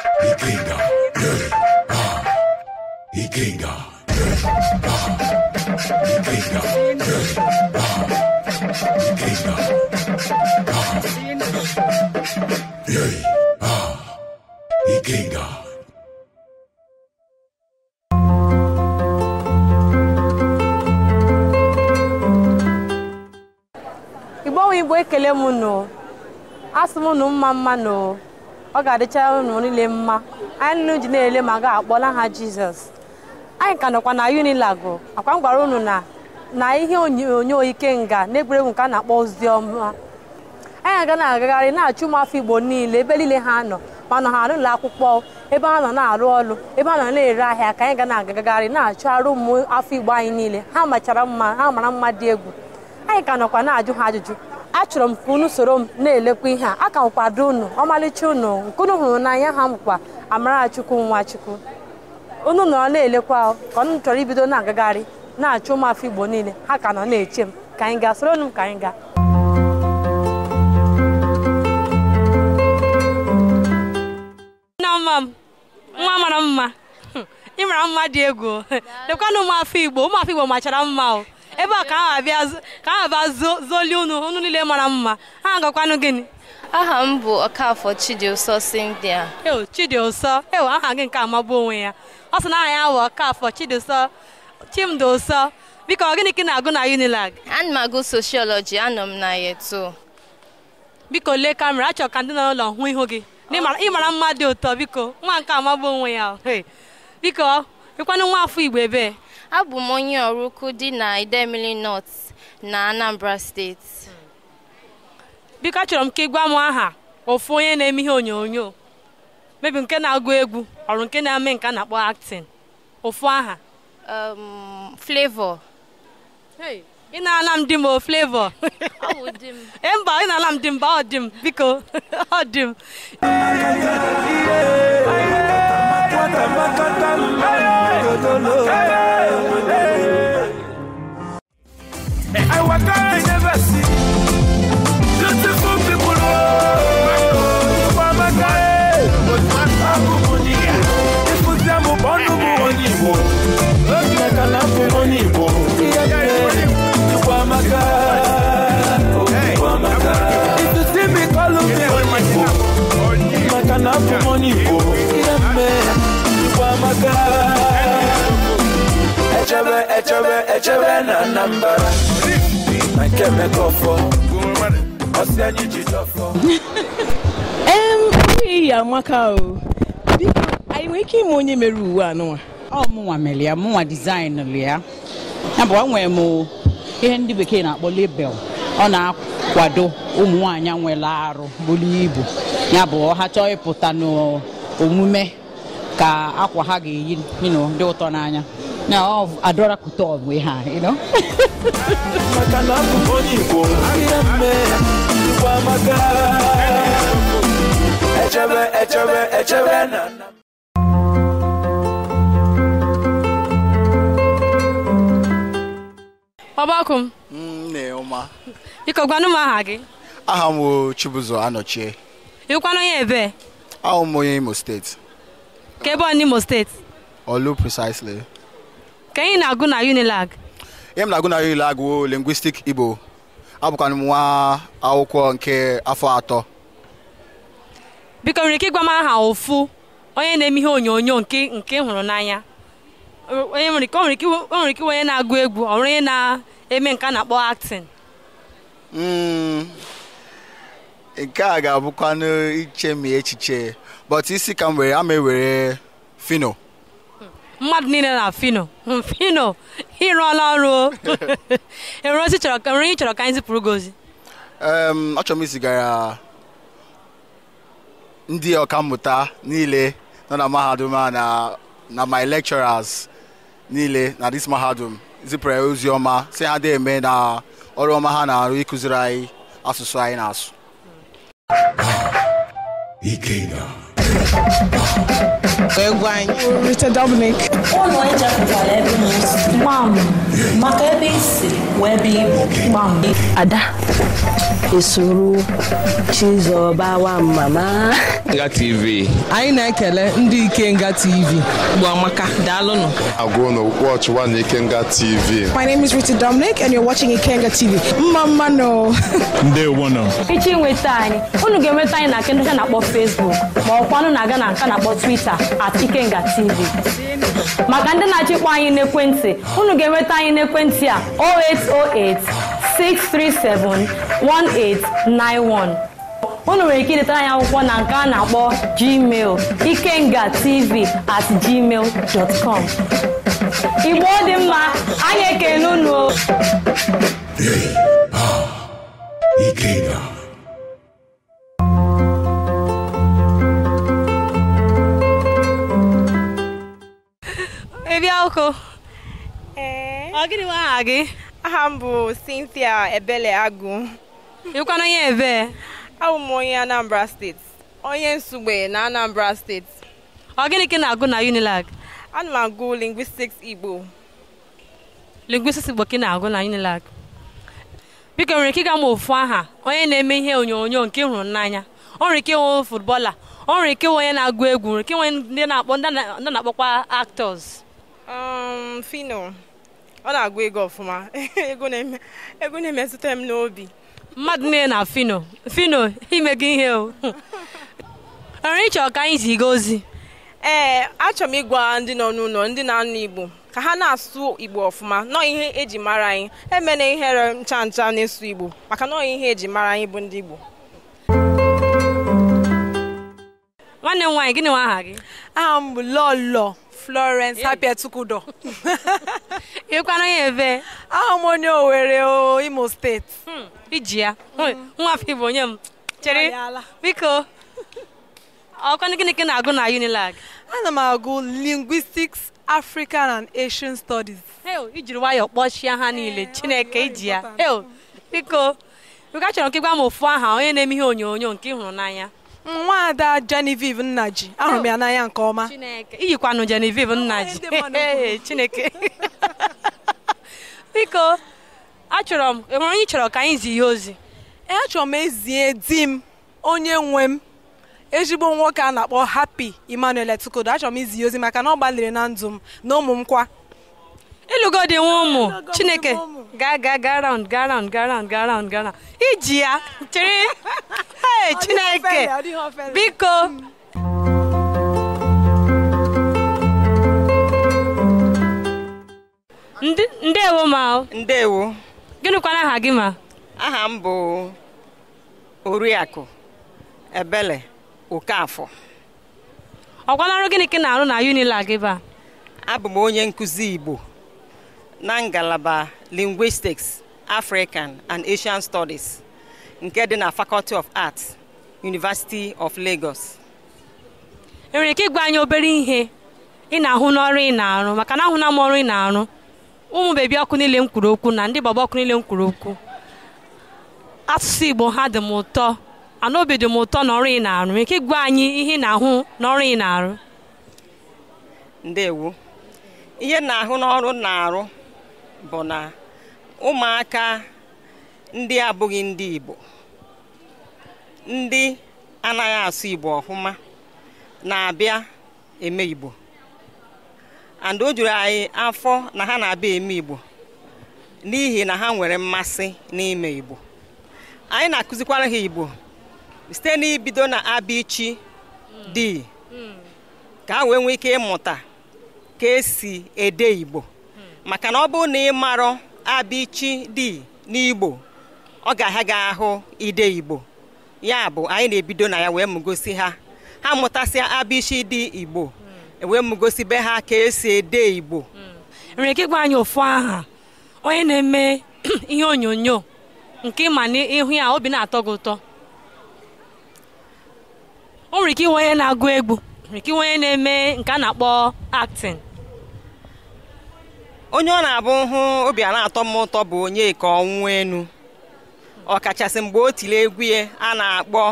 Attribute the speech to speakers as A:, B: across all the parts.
A: Ikinga, yeah, ah. Ikinga, yeah, igbo onwe igbo ekele m nụ asị m nụ mma mma nụ ọ ga adịcha unu niile mma anyị nụ ji na-ele ma ga-akpọla ha jizọs anyị ka nọkwa na unilago akwa m gwara unu na na ihe onyonyo na-egwuregwu nke a na-akpọ ozi ọma anyị aga na-agagharị na-achụ ụmụafọ igbo niile ebe niile ha nọ ma nọ ha n'ụlọ akwụkwọ ebe ha nọ na-arụ ọrụ ebe ha nọ na-ere ahịa ka anyị ga na-agagharị na-achụ arụ ụmụ afọ igbo anyị niile ha machara mma ha mara mma dị egwu anyị ka nọkwa na-ajụ ha ajụjụ achọrọ m ka unu soro m na-elekwa ihe a aka m kwado unu ọmalịcha unu nke unu hụrụ n'anya ha mkpa Amarachukwu Nwachukwu unu nọ na-elekwa ka ọnụ chọrọ ibido na-agagharị na-achụ ụmụafọ Igbo niile ha ka nọ na-eche m ka anyị gaa soro m ka anyị gaa nna mma m nwa mara mma hm, ị mara mma dị egwu lekwanụ ụmụafọ Igbo ụmụafọ Igbo machara mma o ebe a ka aha bịa zoli unu unu niile mara mma ha gakwanụ gịnị aha m bụ ọkafọ Chidiụsọ Cynthia eo Chidiụsọ eo aha gị nke amagbu onwe ya ọ sị na aha ya bụ ọkafọ Chidiụsọ Chimdi Ụsọ biko gịnị ka ị na-agụ na Unilag ana m agụ sociology anọ m na yeto biko lee kamera achọrọ ka ndị nọ n'ụlọ hụ ihu gị ịmara mma dị ụtọ biko nwa nke amagbu onwe ya biko ịkwanụ nwa afọ Igbo ebee abụ m onye ọrụ ukwu dị na Idemili North na Anambra steeti biko achọrọ m ka ị gwa m aha ofu onye na-eme ihe onyonyo mebi nke na-agụ egwu ọrụ nke na-eme nke a na-akpọ actin. ofu aha Flavor ị na-ala m di m o Flavor mba ị na-ala m di m ba ọ dị m biko ọ dị m
B: I love. I walk echebe echebe na Anambra na nke Emeka ọfọ ọsị anyị ji dọfọ iyi amaka o biko anyị nwere ike ịma onye mere uwe a nụnwa ọ mụnwa mere ya mụnwa dizaịnụlụ ya ya bụ enwere m ihe ndị bekee na-akpọ lebel ọ na-akwado ụmụ nwaanyị nwere arụ buru ibu yabụ ọ ha chọọ ịpụta n'omume ka akwa ha ga-eyi dị ụtọ n'anya na adọra kụta we ha you know mm, maka na m onye Igbo ahịa echebe echebe echebe na m nne ha
A: aha gị
B: aha m Chibuzo Anọchie ịkwanụ onye ebee ahụ m onye Imo steeti ka ebe ọ n'Imo steeti olu precisely ka anyị na-agụ na Unilag ihe m na-agụ na Unilag bụ lingwistik Igbo abụkwana nwa akwụkwọ nke afọ atọ
A: biko nwere ike ịgwa m aha ofu onye na-eme ihe onyonyo nke nke hụrụ n'anya onye nwere ike iwe onye na-agụ egwu ọrụ onye na-eme nke a na-akpọ acting
B: hmm. nke a ga-abụkwanụ iche ma echiche but isi ka m were ama ewere fino
A: mmadụ niile na fino fino ịrụọla ọrụ o ozi chọrọ chọrọ ka anyị zipụrụ gị ozi
B: achọrọ m izigara ndị mmụta niile nọ na mahadum a na my lecturers niile na dis mahadum zipụrụ ya ozi ọma si ha na-eme na ọrụ ọma ha na-arụ ịkụziri anyị asụsụ anyị na-asụ Mr. Dominic.
A: Mom, market. wee ada
B: esoro Chizọba mama nga tv anyị na-ekele ndị ike Ikenga TV Gbamaka daalụnụ agụụ na watch one Ikenga TV My name is Ruti Dominic and you're watching Ikenga TV mma mma no ndewo nọ
A: echi nweta anyị unu ga-enweta anyị na nke ndị na-akpọ Facebook ma ọ ọkwanụ na-aga na nka na-akpọ Twitter at Ikenga TV maka ndị na achịkwa anyị n'ekwentị unu ga-enweta anyị n'ekwentị a 0808 637 1891 unu nwere ike idetara anyị akwụkwọ na nke a na-akpọ gmail ikenga tv at gmail dot com igbo dị mma anyị ekele unu Ikenga Ebe ọkụ Ọ gịnị nwe aha gị? Aha m bụ Cynthia Ebele Agụ. Ịkwana onye ebe? Abụ m onye Anambra steeti. Onye Nsugbe na Anambra steeti. Ọ gịnị ka ị na-agụ na UNILAG? Ana m agụ Linguistics Igbo. Linguistics Igbo ka ị na-agụ na UNILAG? Biko nwere ike ịga ma ofu aha onye na-eme ihe onyonyo nke hụrụ n'anya. Ọ nwere ike ịnwe futbọla, O nwere ike ịnwe onye na-agụ egwu, O nwere ike ịnwe ndị na-akpọ ndị na-akpọkwa actors. Um, Fino. ọ na-agụ ego ọfụma ego na-emetụta m n'obi mmadụ nne na fino fino gị ihe o nwere ịchọ ka anyị ziga ozi ee achọrọ m ịgwa ndị nọ n'ụlọ ndị na-anụ igbo ka ha na-asụ igbo ọfụma nọọ ihe eji mara anyị emena ihere ncha ncha na-esu igbo maka nọọ ihe eji mara anyị bụ ndị igbo nwanne m nwaanyị gịnị nwa aha gị aha m bụ lọlọ Florence eh. Apiatukudo ịkwana ya ebe ahụ m onye Owerri o Imo steeti hmm, iji ya nwafọ Igbo onye m
B: chere biko
A: ọkwanụ gịnị na-agụ na Unilag ana m agụ linguistics African and Asian Studies ijiri nwayọọ kpọchie ha niile eh, Chineke iji ya biko biko achọrọ nke gwa m ofu aha onye na-eme ihe onyonyo nke ị hụrụ n'anya nwaada Genevieve Nnaji ahụrụ m ya n'anya nke ọma iyikwanụ Genevieve Nnaji Chineke biko achọrọ m enwere onye chọrọ ka anyị zi ihe ozi e, achọrọ m ezie di m onye nwe m ezigbo nwoke a na-akpọ Hapi Emmanuel Etukodo achọrọ m izi ihe ozi maka na ọ gbalịrị na ndụ m na ụmụ m kwa ịlụgo dị nwa ụmụ Chineke ga ga ga round ga round ga round ga round ga round iji ya chere ee chineke biko hmm.
B: ndewo ma ndewo Gịnịkwa aha gị ma aha m bụ oriakụ ebele okafọ ọkwana gịnị ka ị na-arụ na unila gị ba abụ m onye nkụzi igbo na ngalaba linguistics african and asian studies nke dị na Faculty of Arts University of Lagos enwere ike
A: ịgwa anyị obere ihe ị
B: na-ahụ n'ọrụ ị na-arụ maka na ahụna m ọrụ ị na-arụ
A: ụmụ bebi ọkụ niile m kwuru okwu na ndị baba ọkụ niile m kwuru okwu asụsụ Igbo ha dị m ụtọ ana obi dị m ụtọ n'ọrụ ị na-arụ ike ịgwa anyị ihe ị na-ahụ
B: n'ọrụ ị na-arụ ndewo ihe na-ahụ n'ọrụ na-arụ bụ na ụmụaka ndị abụghị ndị Igbo ndị anaghị asụ Igbo ọfụma na-abịa eme Igbo and o juru anyị afọ na ha na-abịa eme Igbo n'ihi na ha nwere mmasị n'ime Igbo anyị na-akụzikwara ha Igbo site n'ibido na abichi dị ka ha wee nwee ike ịmụta ka esi ede Igbo maka na ọ bụrụ na ị marọ di dị n'Igbo ọ ga-aha gị ahụ ide igbo ya bụ anyị na-ebido na ya wee mụgosi ha ha mụtasịa abịshi dị igbo e wee mụgosi be ha ka esi ede igbo hmm. nwere ike ịgwa anyị ụfụ aha onye na-eme ihe onyonyo nke ịma n'ihu
A: ya obi na-atọ gị ụtọ o nwere ike onye na-agụ egwu nwere ike onye na-eme nke a na-akpọ acting
B: onye ọ na-abụ hụ obi a na-atọ m ụtọ bụ onye ka ọnwụ enu ọkachasị mgbe o tiri egwu ya a na-akpọ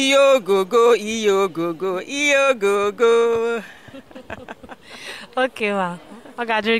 B: "iye ogogo iye ogogo iye ogogo
A: oke ma ọ ga gị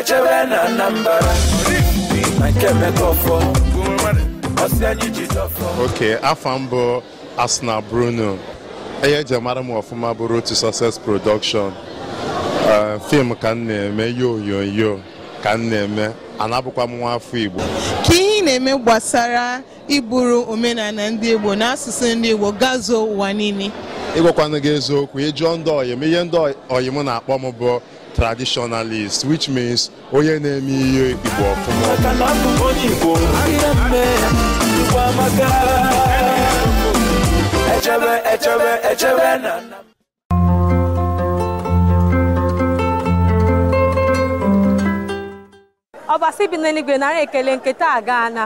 B: echebe na Anambra na nke mekọfọ ọsị anyị ji afọ mbụ Asna Bruno ihe eji mara m ọfụma bụrụ otu Success Production eh, fim ka m na-eme ihe onyonyo ka m na-eme anabụkwa m nwa afọ Igbo ka ihe na-eme gbasara iburu omenala ndị Igbo na asụsụ ndị Igbo gazuo ụwa niile ịgwakwana gị eziokwu ịjụọ ndị ọyịm ihe ndị ọyịm na-akpọ m bụ traditionalist which means onye na-eme ihe Igbo ọfụma
A: ọbasi bi n'eluigwe narị ekele nketa agaana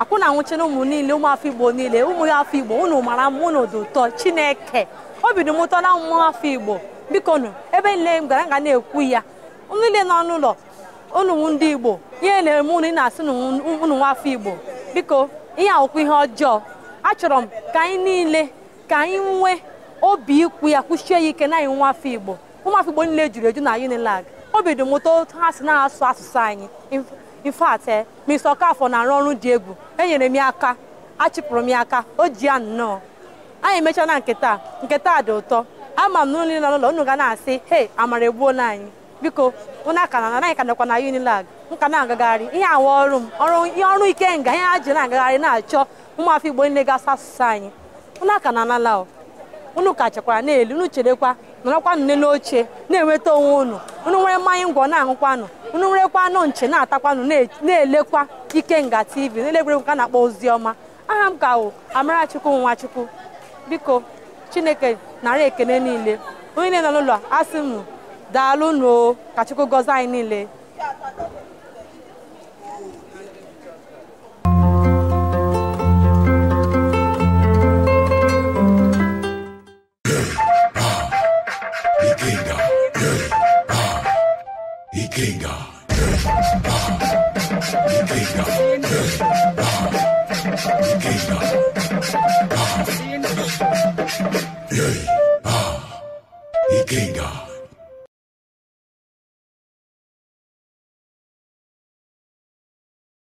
A: akwụ na nwụchina n'ụmụ niile ụmụafọ igbo niile ụmụ afọ igbo unu mara mụ na ụdụ ụtọ chineke obi dị m ụtọ na ụmụafọ afọ igbo bikonu ebe niile m gara nga na-ekwu ya niile n'ọnụ ụlọ unu ndị igbo ihe na-eme na-asị unu nwafọ igbo biko ihe awụkwụ ihe ọjọọ achọrọ m ka anyị niile ka anyị nwee obi ikwu ya kwụchie ya ike na anyị afọ igbo ụmụafọ igbo niile juru eju na unilag obi dị m ụtọ ha si na-asụ asụsụ anyị in fact eh, Mr. Okafọ na-arụ ọrụ dị egwu enyere m ya aka achịpụrụ m ya aka o ji ya nnọọ anyị emechaa na nketa nketa dị ụtọ ama m na ụlọ nọ n'ụlọ unu ga na-asị hei amara egbuola anyị biko unu aka na anaghị ka na unilag nka na-agagharị ihe awa ọrụ m ihe ọrụ ike nga ihe ha ji na-agagharị na-achọ ụmụafọ igbo niile gasị asụsụ anyị unu aka na anala unu ka chekwara n'elu unu cherekwa nọrọkwa nne n'oche na-enweta onwe unu unu nwere mmanya ngwọ na ahụkwanụ unu nwerekwa anụ nche na-atakwanụ na-elekwa nga tv na-elekwere nka na-akpọ ozi ọma aha m ka wụ Amarachukwu Nwachukwu biko chineke nara ekene niile onye na-enọ n'ụlọ asị m daalụ nuo ka chukwu gọzie anyị niile